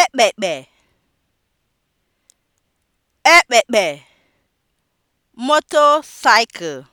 ekpekpe ekpekpe motorcycle